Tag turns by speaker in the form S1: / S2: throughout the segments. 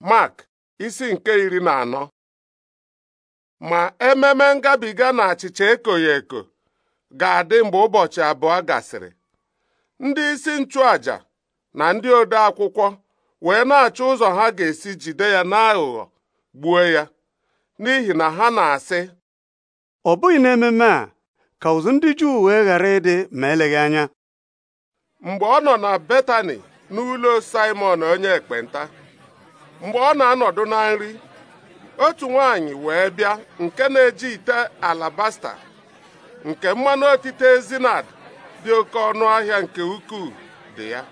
S1: Mark isi nke iri na anọ ma ememe ngabiga na achịcha ekoghị eko ga-adị mgbe ụbọchị abụọ gasịrị ndị isi nchụaja na ndị ode akwụkwọ wee na-achọ ụzọ ha ga-esi jide ya n'aghụghọ gbuo ya n'ihi na ha na-asị
S2: ọ bụghị n'ememe a ka ụzụ ndị Juu wee ghara ịdị ma eleghị anya
S1: mgbe ọ nọ na Betani n'ụlọ Simon onye ekpenta mgbe ọ na-anọdụ na nri otu nwanyị wee bịa nke na-eji ite alabasta nke mmanụ otite ezinad dị oke ọnụ ahịa nke ukwuu dị ya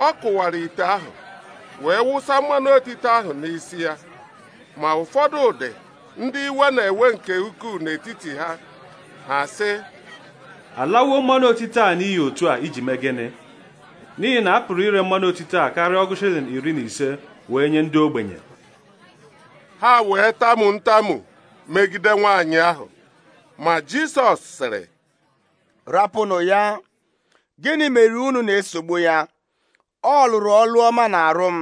S1: ọ kụwara ite ahụ wee wụsa mmanụ otite ahụ n'isi ya ma ụfọdụ ụdị ndị iwe na-ewe nke ukwuu n'etiti ha ha sị alawo mmanụ otite a n'ihi otu a iji mee gịnị n'ihi na a pụrụ ire mmanụ otite a karịa ọgụ shilling iri na ise wee nye ndị ogbenye ha wee tamu ntamu megide
S2: nwaanyị ahụ ma Jisọs sịrị rapụnụ ya gịnị mere unu na-esogbu ya ọ lụrụ ọlụ ọma na arụ m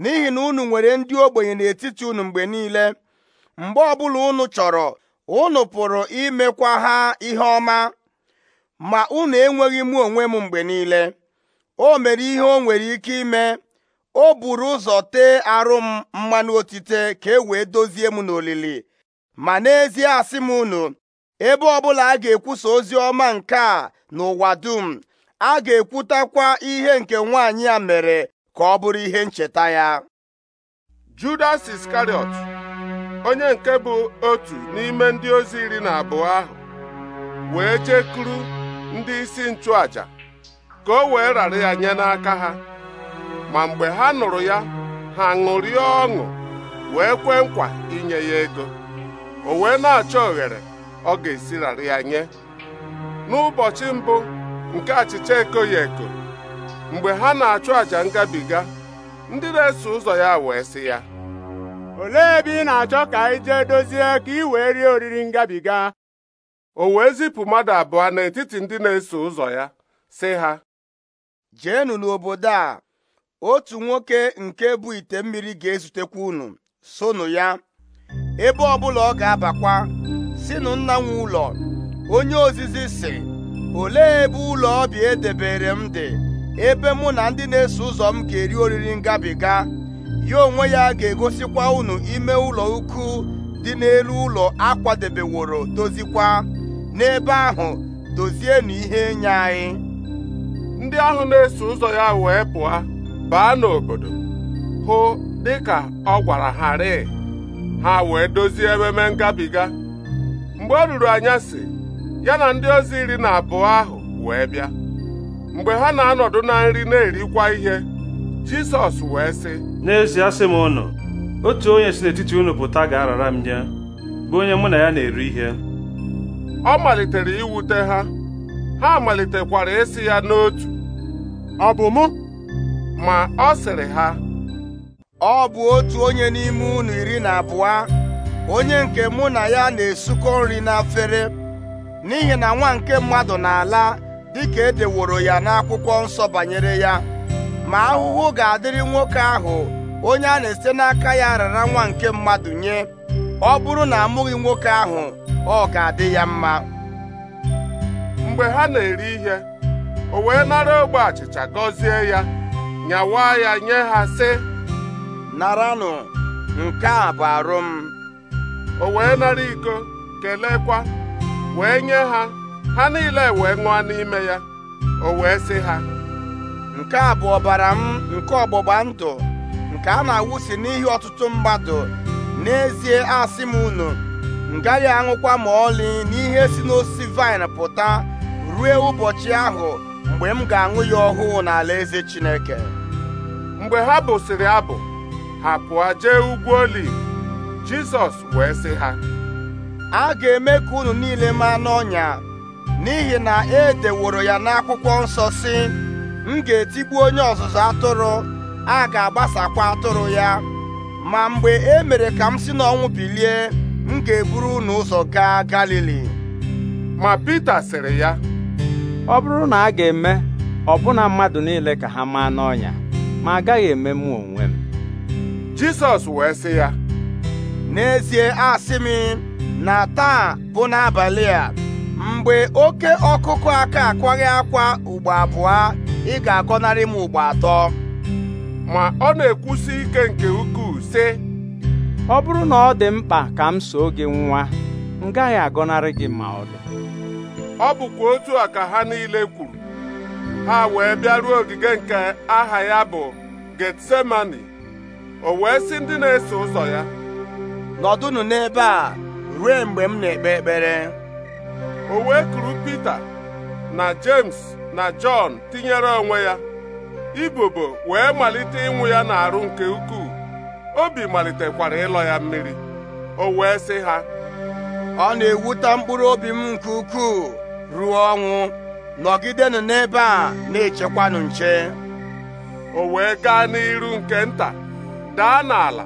S2: n'ihi na unu nwere ndị ogbenye n'etiti unu mgbe niile mgbe ọbụla unu chọrọ unu pụrụ imekwa ha ihe ọma ma unu enweghị mụ onwe m mgbe niile o mere ihe o nwere ike ime o buru ụzọ tee arụ m mmanụ otite ka e wee dozie m n'olili ma n'ezie asị m unu ebe ọbụla a ga-ekwusa ozi ọma nke a n'ụwa dum a ga-ekwutakwa ihe nke nwaanyị a mere ka ọ bụrụ ihe ncheta ya Judas Iskariot onye nke bụ otu
S1: n'ime ndị ozi iri na abụọ ahụ wee jekuru ndị isi nchụaja ka o wee rara ya nye n'aka ha ma mgbe ha nụrụ ya ha ṅụrie ọṅụ wee kwee nkwa inye ya ego o wee na-achọ oghere ọ ga-esirarị ya nye n'ụbọchị mbụ nke achịcha ekoghi eko mgbe ha na-achụ àjà ngabiga ndị na-eso ụzọ ya wee sị ya olee ebe ị na-achọ ka anyị jee dozie ka ị wee rie oriri ngabiga o wee zipụ mmadụ abụọ n'etiti ndị na-eso ụzọ ya
S2: sị ha jeenụ n'obodo a otu nwoke nke bụ ite mmiri ga-ezutekwa unu sonu ya ebe ọbụla ọ ga-abakwa si nna nwe ụlọ onye ozizi si olee ebe ụlọ ọbịa edebere m dị ebe mụ na ndị na-eso ụzọ m ga-eri oriri ngabiga ya onwe ya ga-egosikwa unu ime ụlọ ukwu dị n'elu ụlọ akwadebeworo dozikwa n'ebe ahụ dozienụ ihe nye anyị ndị ahụ na-eso ụzọ ya wee pụọ baa n'obodo
S1: hụ dịka ọ gwara ha rịị ha wee dozie ememe ngabiga mgbe ọ ruru anyasị ya na ndị ozi iri na abụọ ahụ wee bịa mgbe ha na-anọdụ na nri na-erikwa ihe Jisọs wee sị n'ezie sị m ụnụ otu onye si n'etiti unu pụta ga-arara m nye bụ onye mụ na ya na-eri ihe ọ malitere iwute ha ha malitekwara
S2: ịsị ya n'otu ọ bụ mụ ma ọ sịrị ha ọ bụ otu onye n'ime unu iri na abụọ onye nke mụ na ya na-esukọ nri n'afere n'ihi na nwa nke mmadụ na-ala dịka edeworo ya n'akwụkwọ nsọ banyere ya ma ahụhụ ga-adịrị nwoke ahụ onye a na-esite n'aka ya rara nwa nke mmadụ nye ọ bụrụ na amụghị nwoke ahụ ọ ga-adị ya mma mgbe ha na-eri ihe
S1: o wee nara ogbe achịcha gọzie ya nyawa ya nye ha sị naranụ nke a bụ arụ m o wee nara iko kelekwa wee nye ha ha niile wee ṅụọ n'ime ya
S2: o wee sị ha nke a bụ ọbara m nke ọgbụgba ndụ nke a na-awụsi n'ihi ọtụtụ mmadụ n'ezie asị m unu nga ya aṅụkwa ma ọlị n'ihe si n'osisi vaịn pụta ruo ụbọchị ahụ mgbe m ga-aṅụ ya ọhụụ n'ala eze Chineke mgbe ha bụsịrị abụ ha pụọ jee ugwu oliv Jizọs wee sị ha a ga-eme ka unu niile maa n'ọnya n'ihi na e deworo ya n'akwụkwọ nsọ si m ga-etigbu onye ọzụzụ atụrụ a ga-agbasakwa atụrụ ya ma mgbe e mere ka m si n'ọnwụ bilie m ga-eburu unu ụzọ gaa Galili ma Pita sịrị ya ọ bụrụ na a
S1: ga-eme ọbụna mmadụ niile ka ha maa n'ọnya ma agaghị eme mụ onwe m
S2: Jisọs wee sị ya n'ezie asị m na taa bụ n'abalị a mgbe oke ọkụkụ aka akwaghị akwa ugbo abụọ ị ga-agọnarị m ugbo atọ ma ọ na-ekwusi ike nke ukwuu sị ọ bụrụ na ọ dị mkpa ka m soo gị nwa m gaghị agọnarị gị ma ọ
S1: ọ bụkwa otu a ka ha niile kwuru ha wee bịaruo ogige nke aha ya bụ Getsemani o wee sị ndị na-eso ụzọ ya nọdụnụ n'ebe a ruo mgbe m na-ekpe ekpere o wee kuru Pita na James na Jọn tinyere onwe ya ibobo wee malite ịnwụ ya n'arụ nke
S2: ukwuu obi malitekwara ịlọ ya mmiri o wee sị ha ọ na-ewute mkpụrụ obi m nke ukwuu ruo ọnwụ nọgidenụ n'ebe a na-echekwanụ nche o wee gaa n'iru nke nta
S1: daa n'ala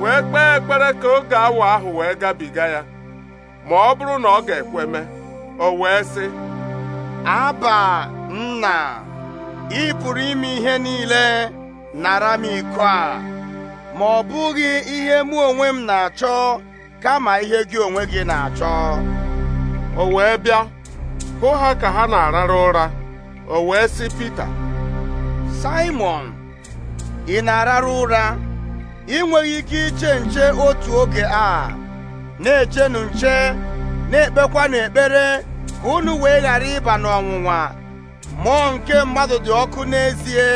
S1: wee kpee ekpere ka oge awa ahụ wee gabiga ya
S2: ma ọ bụrụ na ọ ga-ekweme o wee sị aba nna ị pụrụ ime ihe niile nara m iko a ma ọ bụghị ihe mụ onwe m na-achọ kama ihe gị onwe gị na-achọ o wee bịa hụ ha ka ha na-arara ụra o wee sị Pita Simon ị na-arara ụra ị ike iche nche otu oge a na-echenụ nche na-ekpekwanụ ekpere ka unu wee ghara ịba n'ọnwụnwa mmụọ nke mmadụ dị ọkụ n'ezie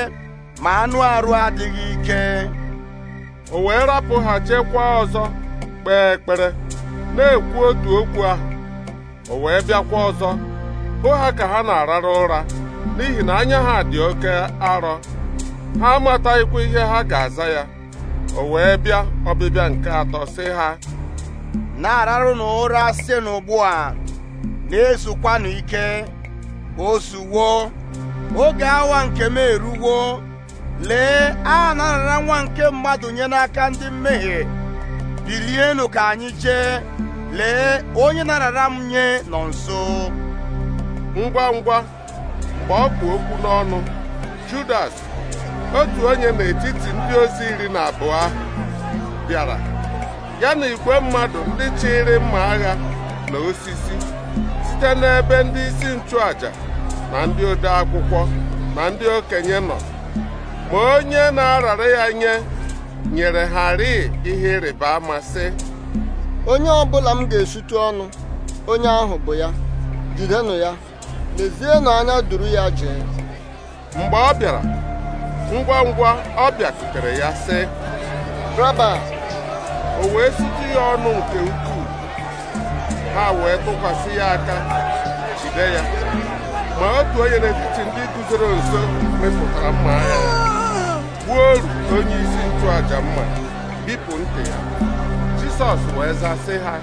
S2: ma anụ arụ adịghị ike o wee rapụ ha chekwa ọzọ kpee ekpere na-ekwu
S1: otu okwu ahụ o wee bịakwa ọzọ hụ ha ka ha na-arara ụra n'ihi na anya ha dị oke arọ ha amataghịkwa ihe ha ga-aza ya
S2: o wee bịa ọbịbịa nke atọ sị ha na-ararụ n'ụra si n'ugbu a na-ezukwanụ ike osuwo oge awa nke m eruwo lee a na nwa nke mmadụ nye n'aka ndị mmehie bilienụ ka anyị jee lee onye na-arara m nye nọ nso ngwa ngwa mgbe
S1: ọ bụ okwu n'ọnụ Judas otu onye n'etiti ndị ozi iri na abụọ ahụ bịara ya na igwe mmadụ ndị chịrị mma agha na osisi site n'ebe ndị isi nchụaja na ndị ode akwụkwọ na ndị okenye nọ ma onye na-arara ya nye nyere ha rịị ihe ịrịba ama sị
S2: onye bụla m ga esutu ọnụ onye ahụ bụ ya jidenụ ya na anya duru ya jee mgbe ọ bịara ngwa ngwa ọ bịakutere ya sị
S1: raba o wee sutu ya ọnụ nke ukwuu ha wee tụkwasị ya aka jide ya ma otu onye n'etiti ndị guzoro nso mepụtara mma agha gbuo oru onye isi nchụaja
S2: mma bipụ ntị ya jisọs wee zasị ha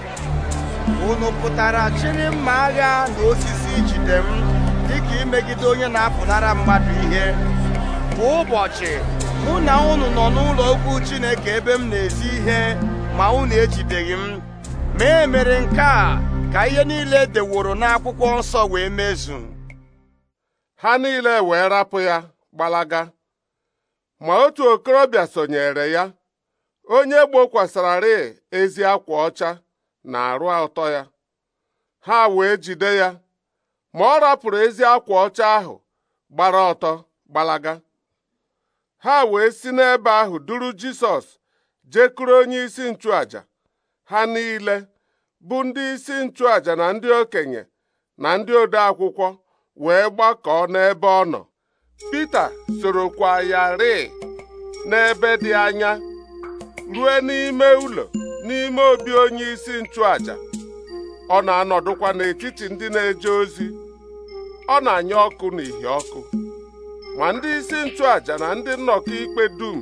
S2: unu pụtara chiri mma agha na osisi ijide m dịka imegide onye na-apụnara mmadụ ihe kwa ụbọchị mụ na unu nọ n'ụlọ Chineke ebe m na-ezi ihe ma unu ejideghị m ma e mere nke a ka ihe niile deworo n'akwụkwọ nsọ wee mezu ha
S1: niile wee rapụ ya gbalaga ma otu okorobịa sonyere ya onye gbokwasararị ezi akwa ọcha na arụ atọ ya ha wee jide ya ma ọ rapụrụ ezi akwa ọcha ahụ gbara ọtọ gbalaga ha wee si n'ebe ahụ duru Jisọs jekuru onye isi nchụaja ha niile bụ ndị isi nchụaja na ndị okenye na ndị ode akwụkwọ wee gbakọọ n'ebe ọ nọ Pita sorokwa ya rịị n'ebe dị anya ruo n'ime ụlọ n'ime obi onye isi nchụaja ọ na-anọdụkwa n'etiti ndị na-eje ozi ọ na-anya ọkụ n'ihi ọkụ ma ndị isi nchụàja na ndị nnọkọ ikpe dum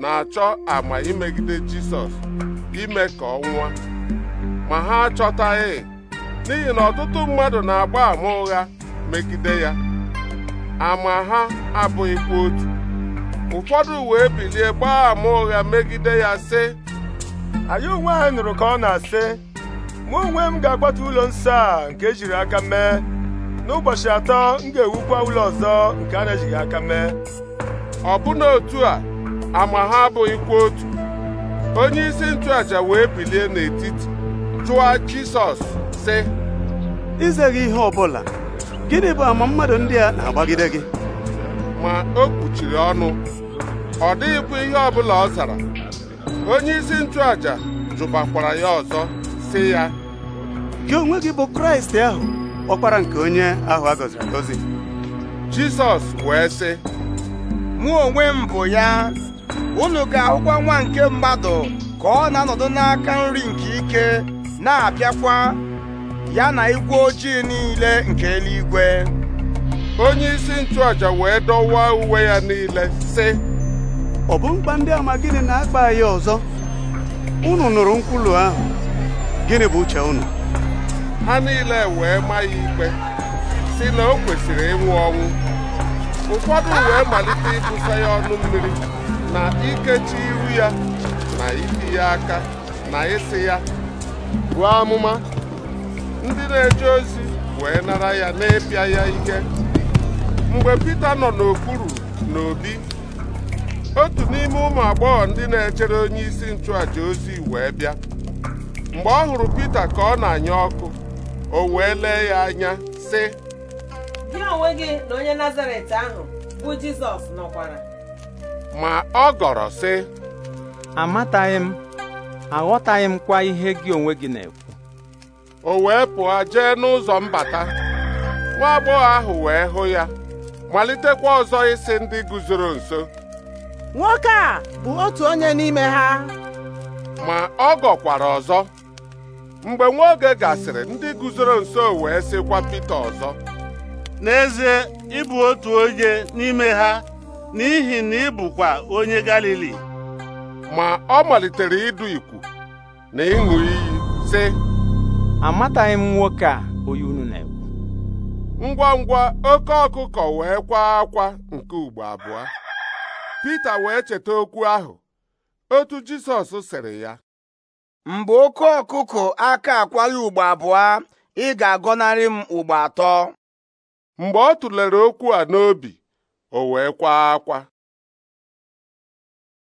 S1: na-achọ ama imegide Jisọs ime ka ọ nwụọ ma ha achọtaghị n'ihi na ọtụtụ mmadụ na-agba ama ụgha megide ya ama ha abụghịkwa otu ụfọdụ wee bilie gbaa ama ụgha megide ya sị anyị onwe anyị nụrụ ka ọ na-asị mụ onwe m ga-akwatu ụlọ nsọ a nke ejiri aka mee n'ụbọchị atọ m ga-ewukwa ụlọ ọzọ nke a na-ejighị aka mee ọbụna otu a ama ha abụghịkwa otu onye isi nchụaja wee bilie n'etiti jụọ Jisọs sị gị ihe ọbụla gịnị bụ ama mmadụ ndị a na-agbagide gị ma o kpuchiri ọnụ ọ dịghịkwa ihe ọbụla ọ zara onye isi aja jụbakwara ya ọzọ sị ya
S2: gị onwe gị bụ Kraịst ahụ ọkpara nke onye ahụ a agọzi jizọs wee sị mụ onwe m bụ ya unu ga-ahụkwa nwa nke mmadụ ka ọ na-anọdụ n'aka nri nke ike na-abịakwa ya na igwe ojii niile nke eluigwe onye isi
S1: nchụaja wee dọwaa uwe ya niile sị ọ bụ mkpa ndị ama gịnị na-akpa ya ọzọ unu nụrụ nkwulu ahụ gịnị bụ uche unu ha niile wee maa ya ikpe si na o kwesịrị ịnwụ ọnwụ ụfọdụ wee malite ịbụsa ya ọnụ mmiri na ikechi iru ya na iti ya aka na ịsị ya buo amụma ndị na-eje ozi wee nara ya na-epịa ya ike mgbe Pita nọ n'okpuru na obi. otu n'ime ụmụ agbọghọ ndị na-echere onye isi nchụàjà ozi wee bịa mgbe ọ hụrụ Pita ka ọ na-anya ọkụ o wee lee ya anya sị
S2: gị onwe gị na onye
S1: nazaret ahụ bụ jizọs nọkwara ma ọ gọrọ sị amataghị m aghọtaghị m kwa ihe gị onwe gị na-ekwu o wee pụọ jee n'ụzọ mbata nwa agbọghọ ahụ wee hụ ya malitekwa ọzọ isi ndị guzoro nso nwoke a
S2: bụ otu onye
S1: n'ime ha ma ọ gọkwara ọzọ mgbe nwa oge gasịrị ndị guzoro nso wee sịkwa Pita ọzọ n'ezie ịbụ otu onye n'ime ha n'ihi na ị bụkwa onye Galili ma ọ malitere ịdụ ikwu na ịṅụ iyi sị
S2: amataghị m nwoke a onye unu na-ekwu
S1: ngwa ngwa oke ọkụkọ wee kwaa akwa nke ugbo abụọ Pita wee cheta okwu ahụ
S2: otu Jisọs sịrị ya mgbe oke ọkụkụ aka akwaghị ugbo abụọ ị ga-agọnarị m ugbo atọ mgbe ọ tụlere okwu a
S1: n'obi o wee kwaa akwa